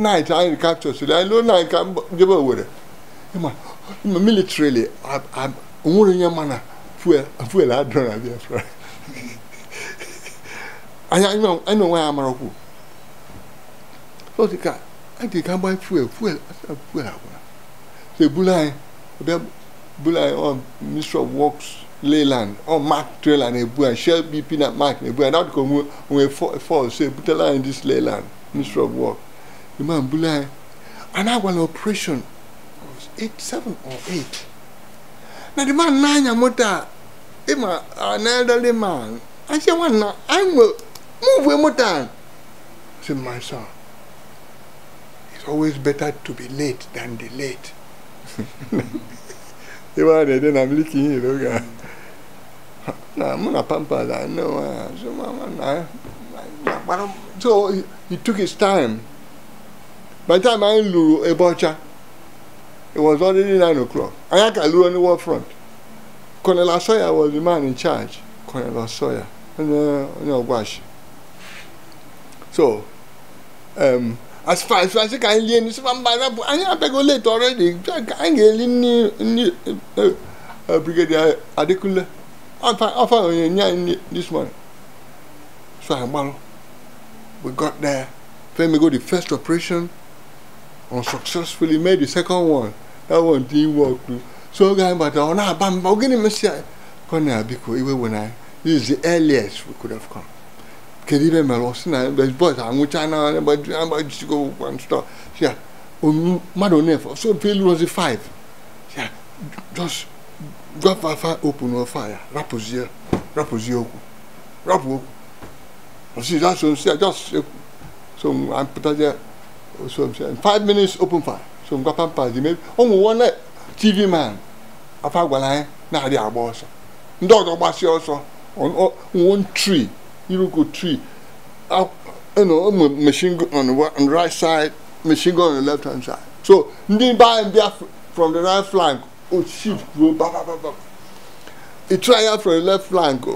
night anyị capture so i lụọ night ka jebe Owerri ịma militarily onwere onye ma na fuel i na Biafra anyị onwe ya amarakwu so dị ka anyị dị ka gbanye fuel fuel fuel agwara so ebulu anyị Leyland or oh, Mark trailer na-ebu anyị Shell BP na Mark na-ebu anyị na-adịka onwe onwe fọl so ebutela anyị dis Leyland ministry of The man Bulai, and I was an operation. I was eight, seven or eight. Now the man nine-year nanya mota, ima an elderly man. I said, what now, I'm move mota." I said, "My son, it's always better to be late than delayed." Iwa de de na miliki ni loga. I'm muna pampa da no. So my man. So he took his time by the time anyị lụrụ Ebọcha it was already nine o'clock I anyị aka the war front Colonel Asọya was the man in charge Colonel Asọya and onye wash. so um, as far as asị ka anyị lie by. ma mba arabụ anyị abịago late already anyị ga-eli nni nni uh, Brigadier Adekunle afọ onye nye anyị this morning so anyị gbalụ we got there Then we go the first operation unsuccessfully made the second one. That one didn't work too. So guy but on oh, bam ogini mesia kona biko when I. This is the earliest we could have come. Kedibe melosina but ah, but amuchana and but and just go one stop. Yeah. Um madonef so failure was a five. Yeah. Just go fire open or fire. Rapozier. Rapozier. Rapo. You see that's what I'm saying. Just eh, so I'm putting that so five minutes open fire so m gbapa mpa di mebi ụmụ nwanne tv man afa gwara anyị na-adị agba ọsọ ndị ọzọ gbasịa ọsọ one tree iruko tree machine gun on the right side machine gun on the left hand side so ndị be anyị bịa from the right flank o ship ruo babababa e try out from the left flank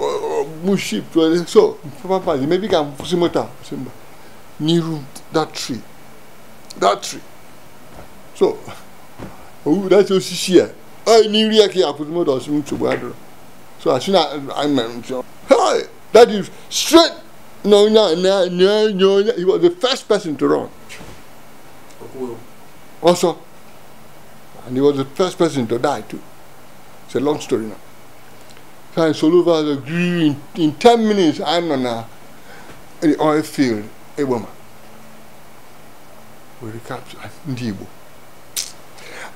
mu ship so papa papa di mebi ka m kwụsị moto n'iru that tree datri so owu dati osisi a ɔyɛ ne nri ɛkɛ apotomo da ɔsi mu tsobo adoro so asi na amen so hey that is straight na onya na na na onya he was the first person to run also and he was the first person to die too it's a long story now so I solo in, in ten minutes I'm on a, an oil field a woman. were capture ndị Igbo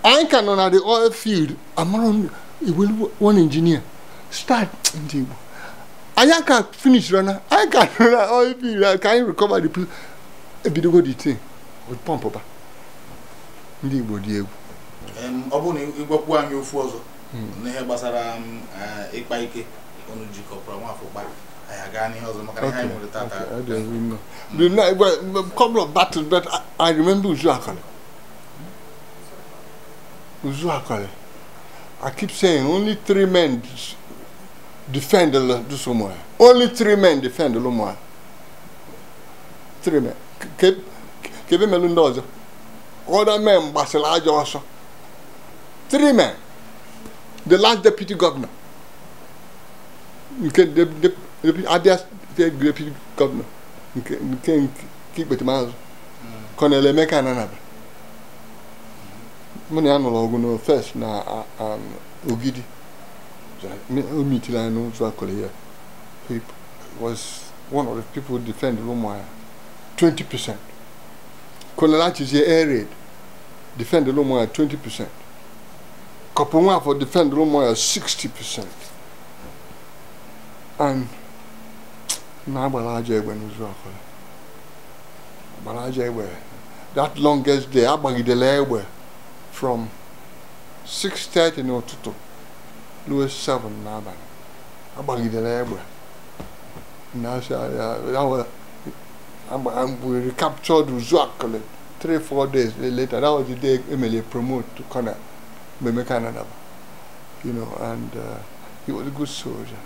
anyị ka nọ na the oil field amara iwelu one engineer start ndị Igbo anyị aka finish rana anyị ka nọ na oil field ka anyị recover the place ebidogo the thing with pump ba ndị Igbo dị egwu ọ bụrụ na ịgwakwu anyị ofu ọzọ n'ihe gbasara ịkpa ike ọnụ jikọpụrụ nwafọ kpara The couple of battles, but I, I remember Uzu Akale. Uzu Akale. I keep saying only three men defend the Dusomoya. Only three men defend the Lomoya. Three men. Kebe Melundoza. Other men, Basila Joshua. Three men. The last deputy governor. You can, the, the, depuis ADS fait depuis comme qui qui peut manger quand les mecs en arabe mo ni anọ ọgụ no first na um, ogidi o mitila no so akọrọ ya he was one of the people defend Lumuaya twenty percent kọlọlachi ṣe air raid defend Lumuaya twenty percent kọpọ for defend Lumuaya sixty percent and. na-agbara aja egbe n'ụzọ ọkụla gbara aja egbe that longest day agbagidela egbe from 6:30 n'ụtụtụ ruo 7 n'abalị agbagidela egbe we recaptured Uzuakule 3-4 days later that was the day emele promote to kona Memeka Nadaba you know and uh, he was a good soldier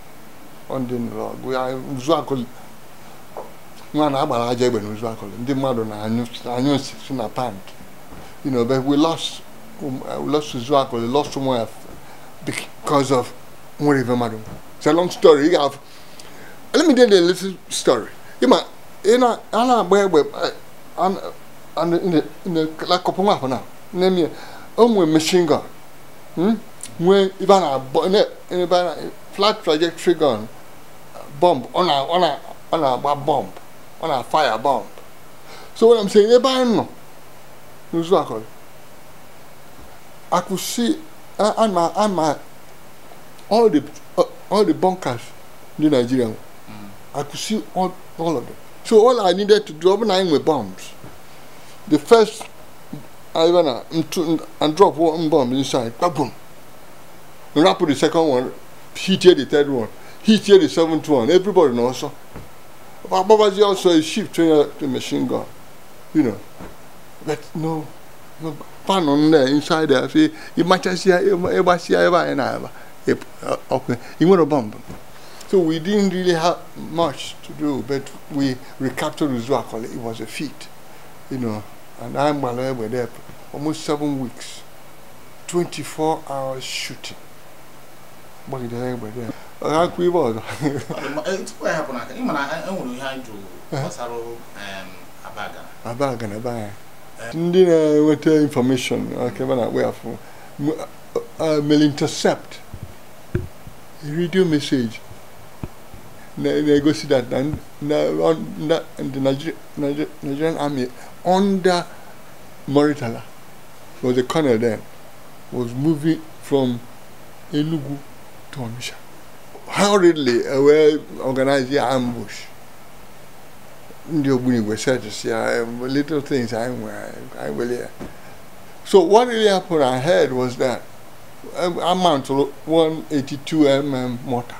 ọ ndị ndọrọgwụ ya nzuakụlị nwa na agbara aja egbe na nzuakụlị ndị mmadụ na-anyụ si na pant you know but we lost um, uh, we lost nzuakụlị lost nwa because of nwere ife mmadụ it's a long story you have let me tell you a little story ịma ị na a na-agba egbe akọpụ nwa afọ na nne m ya o nwere machine gun hmm? nwee ibe a na-abọ ebe a na flat trajectory gun bomb On a, on a, on a bomb On a fire bomb so what I'm saying ebe anyị nọ n'ụzọ akọrọ akụsi ama ama all the uh, all the bunkers ndị Nigeria see all all of them so all I needed to drop nine bụ bombs the first I went uh, and drop one bomb inside, boom. Rapid the second one he tear the third one he tear the seventh one everybody na ọsọ Babaji also a chief trainer to machine gun you know but no no pan on there inside there say emergency emergency ever and ever okay you want a bomb so we didn't really have much to do but we recaptured Uzuakole it was a feat you know and I'm were there almost seven weeks 24 hours shooting gbagidere egbede onye i ibe ọzọ tupu ya hapụ n'aka ịma na enwere ihe anyị jụrụ gbasara abagana abagana ebe anya ndị na-enweta infọmeshọn akebe na-akpọ We have. mel intercept redio meseji na-egosi that uh, uh, na the nigerian army under Moritala, was a colonel then was moving from Enugu Tomisha hurriedly away organize the ambush. Ndị Ogbunigwe said to see little things I I will hear. So what really happened I heard was that um, a mount one eighty-two mm mortar.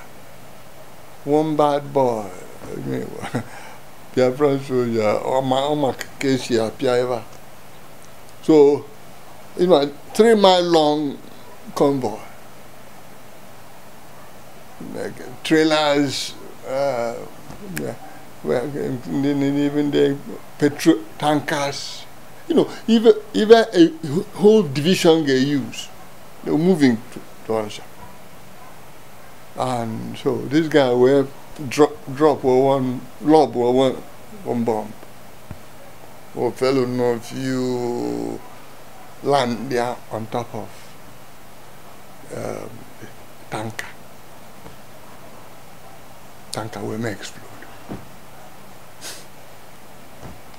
One bad boy. Biafran soldier, Oma Kesi Apiaiva. So, you know, three mile long convoy. trailers, uh, even the petrol tankers. You know, even even a whole division they use, they're moving to, to And so this guy will drop drop or one lob or one one bomb. Or fellow north you land there on top of um, tanker. tankawe may explode.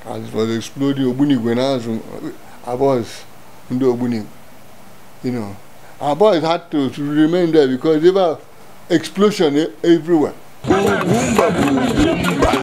As it was exploding, Ogbunigwe now, our boys, Ndo Ogbunigwe, you know, our boys had to, to remain there because there were explosion eh, everywhere.